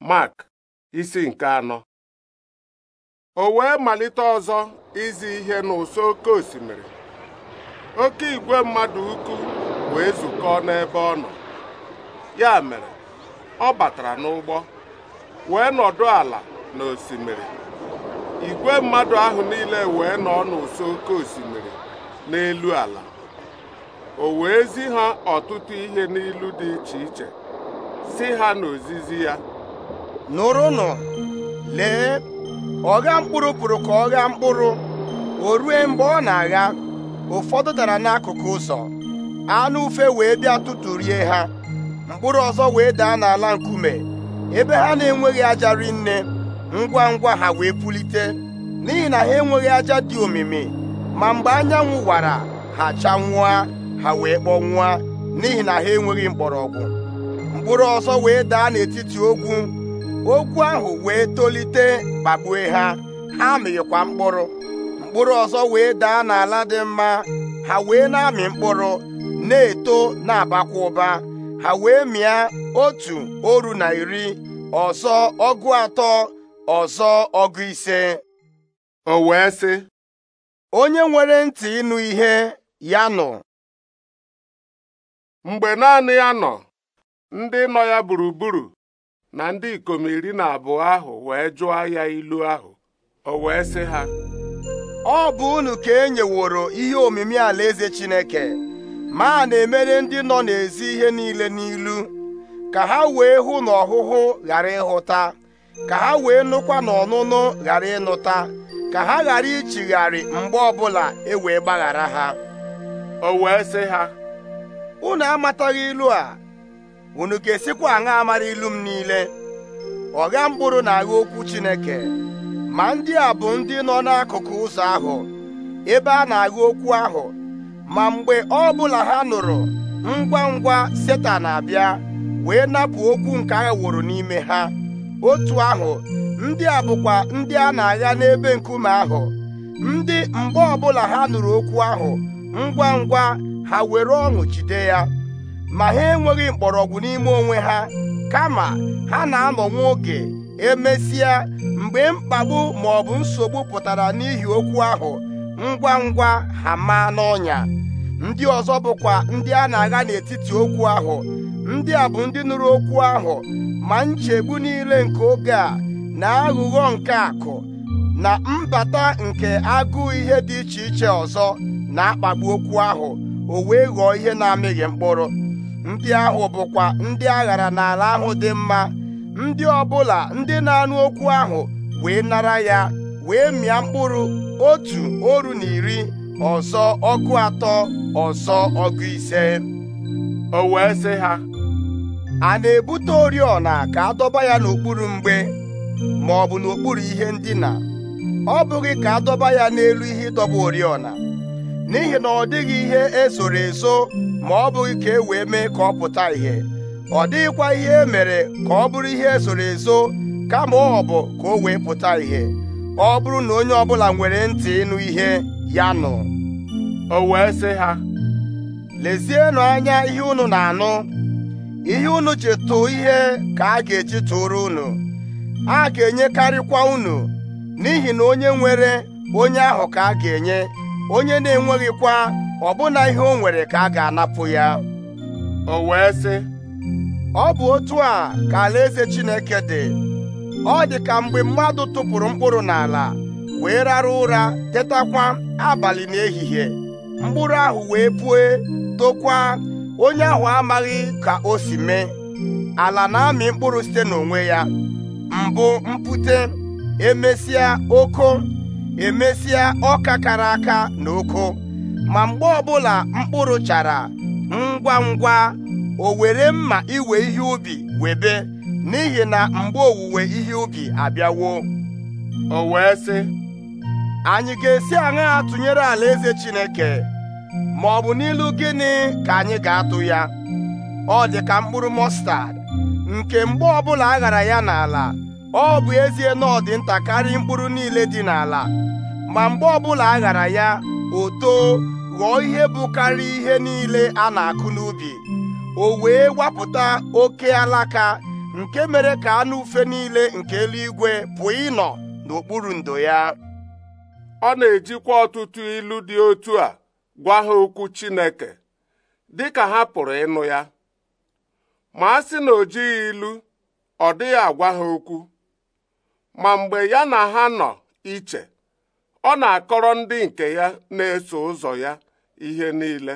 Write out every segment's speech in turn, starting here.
Mark isi nke anọ o wee malite ọzọ izi ihe n'ụsọ oke osimiri oke igwe mmadụ ukwu wee zukọọ n'ebe ọ nọ ya mere ọ batara n'ụgbọ wee nọdụ ala n'osimiri igwe mmadụ ahụ niile wee nọ n'ụsọ oke osimiri n'elu ala o wee zi ha ọtụtụ ihe n'ilu dị iche iche si ha n'ozizi ya nụrụnụ lee ọgha mkpụrụ pụrụ ka ọ ghaa mkpụrụ o rue mgbe ọ na-agha ụfọdụ dara n'akụkụ ụzọ anụ ufe wee bịa rie ha mkpụrụ ọzọ wee daa n'ala nkume ebe ha na-enweghị aja rinne ngwa ngwa ha wee pulite n'ihi na ha enweghị aja dị omimi ma mgbe anyanwụ wara ha chanwụa ha wee kpọnwụa n'ihi na ha enweghị mgbọrọgwụ mkpụrụ ọzọ wee daa n'etiti ogwu Ogwu ahụ wee tolite kpagbue ha ha mịkwa mkpụrụ mkpụrụ ọzọ wee daa n'ala dị mma ha wee na-amị mkpụrụ na-eto na-abakwa ụba ha wee mịa otu oru na iri ọzọ ọgụ atọ ọzọ ọgụ ise o wee sị onye nwere ntị ịnụ ihe ya nọ. mgbe naanị ya nọ ndị nọ ya gburugburu na ndị ikom iri na abụọ ahụ wee jụọ ya ilu ahụ o wee sị ha ọ bụ unu ka e nyeworo ihe omimi ala eze Chineke ma na-emere ndị nọ n'ezi ihe niile n'ilu ka ha wee hụ na ọhụhụ ghara ịhụta ka ha wee nụkwa na ọnụnụ ghara ịnụta ka ha ghara ichigharị mgbe ọbụla e wee gbaghara ha o wee sị ha unu amataghị ilu a unu ga-esikwa aṅaa amara ilu m niile ọgha mkpụrụ na-agha okwu Chineke ma ndị a bụ ndị nọ n'akụkụ ụzọ ahụ ebe a na-agha okwu ahụ ma mgbe ọ bụla ha nụrụ ngwa ngwa Setan abịa wee napụ okwu nke wụrụ n'ime ha otu ahụ ndị a bụkwa ndị a na-agha n'ebe nkume ahụ ndị mgbe ọbụla ha nụrụ okwu ahụ ngwa ngwa ha were ọṅụ jide ya ma ha enweghị mkpọrọgwụ n'ime onwe ha kama ha na-anọ nwa oge emesịa mgbe mkpagbu ma ọ bụ nsogbu pụtara n'ihi okwu ahụ ngwa ngwa ha maa n'ọnya ndị ọzọ bụkwa ndị a na-agha n'etiti okwu ahụ ndị a bụ ndị nụrụ okwu ahụ ma nchegbu niile nke oge a na aghụghọ nke akụ na mbata nke agụụ ihe dị iche iche ọzọ na-akpagbu okwu ahụ o wee ghọọ ihe na-amịghị mkpụrụ ndị ahụ bụkwa ndị aghara n'ala ahụ dị mma ndị ọbụla ndị na-anụ okwu ahụ wee nara ya wee mịa mkpụrụ otu oru na iri ọzọ ọgụ atọ ọzọ ọgụ ise o wee sị ha a na-ebute oriọna ka a dọba ya n'okpuru mgbe ma ọ bụ n'okpuru ihe ndina ọ bụghị ka a dọba ya n'elu ihe ịdọba oriọna n'ihi na ọ dịghị ihe esoro eso ma ọ bụghị ka e wee mee ka ọ pụta ìhè ọ dịghịkwa ihe e mere ka ọ bụrụ ihe esoro eso kama ọ bụ ka o wee pụta ìhè ọ bụrụ na onye ọbụla nwere ntị ịnụ ihe ya nụ o wee sị ha lezienụ anya ihe unu na-anụ ihe unu chetụ ihe ka a ga-eji tụrụ unu a ga-enyekarịkwa unu n'ihi na onye nwere onye ahụ ka a ga-enye onye na-enweghịkwa ọbụna ihe o nwere ka a ga-anapụ ya o wee sị ọ bụ otu a ka alaeze Chineke dị ọ dị ka mgbe mmadụ tụpụrụ mkpụrụ n'ala wee rara ụra tetakwa abalị n'ehihie mkpụrụ ahụ wee pue tokwa onye ahụ amaghị ka o si mee ala na-amị mkpụrụ site n'onwe ya mbụ mpute emesịa oko emesịa ọka kara aka na ụkụ ma mgbe ọbụla mkpụrụ chara ngwa ngwa o were mma iwe ihe ubi webe n'ihi na mgbe owuwe ihe ubi abịawo o wee sị anyị ga-esi aṅaa tụnyere alaeze Chineke ma ọ bụ n'ilu gịnị ka anyị ga-atụ ya ọ dị ka mkpụrụ mọstad nke mgbe ọbụla a ghara ya n'ala ọ bụ ezie na ọ nta karịa mkpụrụ niile dị n'ala ma mgbe ọbụla a ghara ya o too ghọọ ihe bụ karịa ihe niile a na-akụ n'ubi o wee wapụta oke alaka nke mere ka anụ ufe niile nke eluigwe pụọ ịnọ n'okpuru ndo ya ọ na-ejikwa ọtụtụ ilu dị otu a gwa ha okwu Chineke dị ha pụrụ ịnụ ya ma a sị na o jighị ilu ọ dịghị agwa ha okwu ma mgbe ya na ha nọ iche ọ na-akọrọ ndị nke ya na-eso ụzọ ya ihe niile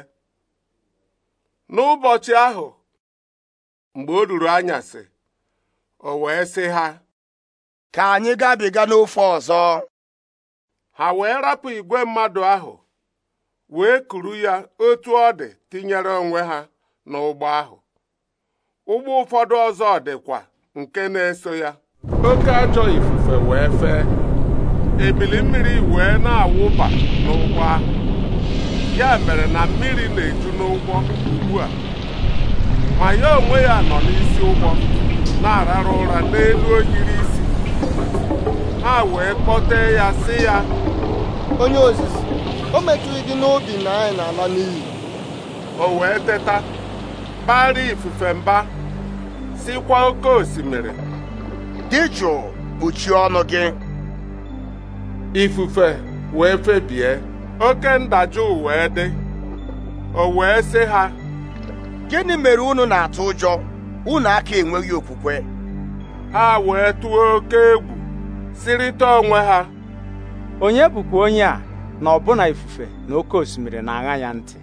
n'ụbọchị ahụ mgbe o ruru anyasị o wee sị ha ka anyị gabiga n'ofe ọzọ ha wee rapụ igwe mmadụ ahụ wee kuru ya otu ọ dị tinyere onwe ha n'ụgbọ ahụ ụgbọ ụfọdụ ọzọ dịkwa nke na-eso ya oke ajọ ife wee fee ebili mmiri wee na-awụba n'ụgbọ ahụ ya mere na mmiri na-eju n'ụgbọ ugbu a ma ya onwe ya nọ n'isi ụgbọ na-arara ụra n'elu oyiri isi ha wee kpọte ya sị ya onye ozizi o metụghị gị n'obi na anyị na-ala n'iyi o wee teta baara ifufe mba sikwa oke osimiri dị jụụ kpuchie ọnụ gị ifufe wee febie oke ndajụ wee dị o wee sị ha gịnị mere unu na-atụ ụjọ unu aka enweghị okwukwe ha wee tụọ oke egwu sirịta onwe ha onye bụkwa onye a na ọbụna ifufe na oke osimiri na-aṅa ya ntị